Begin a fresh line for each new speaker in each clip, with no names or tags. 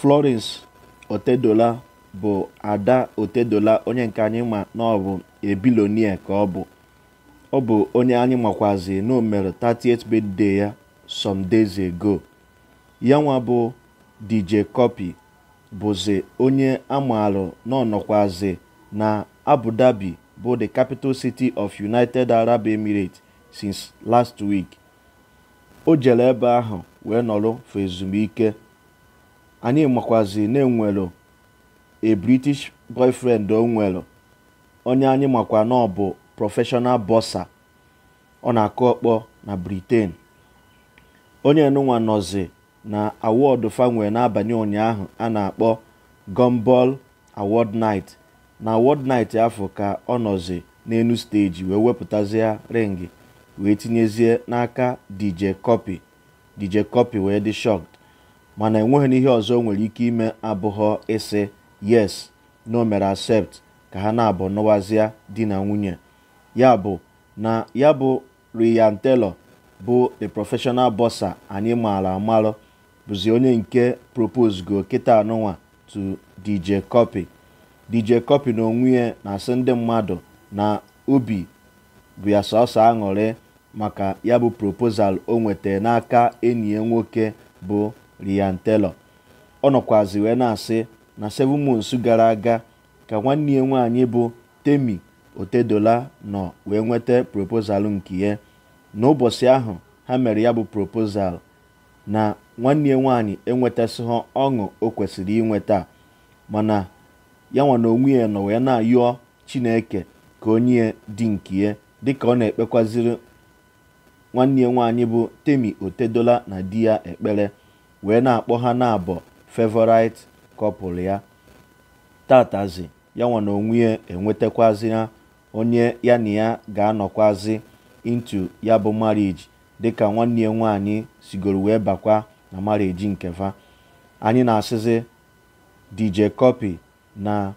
Florence Otedola bụ Ada Otedola onye nke anyị ma na ọ bụ ebilonie ka ọ bụ ọ bụ onye anyị makwazi na o mere 38th birthday ya some days ago ya nwa bụ DJ copy bụzi onye amaalụ na ọnọkwazi na Abu Dhabi bụ the capital city of United Arab Emirates since last week o jere ebe ahụ wee nọrọ for ezumike anyị makwazi na enwelu a british boyfriend o nwelu onye anyị makwa na ọ bụ professional bọsa ọ na-akụ ọkpọ na britain onye nụnwa nọzi na awọdụ fanwee n'abalị ụnyaahụ a na-akpọ gombol award night na award night afọ ka ọ nọzi n'enu steji wee wepụtazie ringi wee tinyezie n'aka dj copy dj copy wee dị shocked mana enweghị n'ihe ọzọ nwere ike ime abụghọ ịsị yes na mere accept ka ha na-abụ nụwazịa di na nwunye ya bụ na ya bụ Ryan teller bụ the professional boxer anyị maara amalụ bụzi onye nke propose go kịta anụnwa to DJ Cuppy DJ Cuppy na onwe na-asị ndị mmadụ na obi bụ ya sọsọ aṅụrị maka ya bụ proposal o nwetara n'aka enyi ya nwoke bụ rian telo ọ nọkwazi wee na-asị na seven months gara aga ka nwanne ya nwaanyị bụ Temi Otedola nọ wee nweta proposal nke ya n'ụbọchị ahụ ha mere ya bụ proposal na nwanne ya nwaanyị enwetasịghị ọṅụ o kwesịrị inweta mana ya nwa na onwe ya nọ wee na-ayọ Chineke ka onye dị nke ya dịka ọ na-ekpekwaziri nwanne ya nwaanyị bụ Temi Otedola na di ya ekpere wee na-akpọ ha na-abọ favorite ya tatazi ya nwa na onwe enwetakwazi ha onye ya na ya ga-anọkwazi intu ya bụ marriage dịka nwanne ya nwaanyị sigoro wee bakwa na marriage nke fa. anyị na-asịzi DJ Cuppy na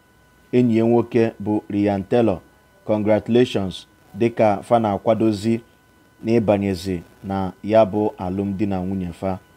enyi ya nwoke bụ Ryan Taylor congratulations dịka fa na-akwadozi n'ịbanyezi na ya bụ alụmdi na nwunye fa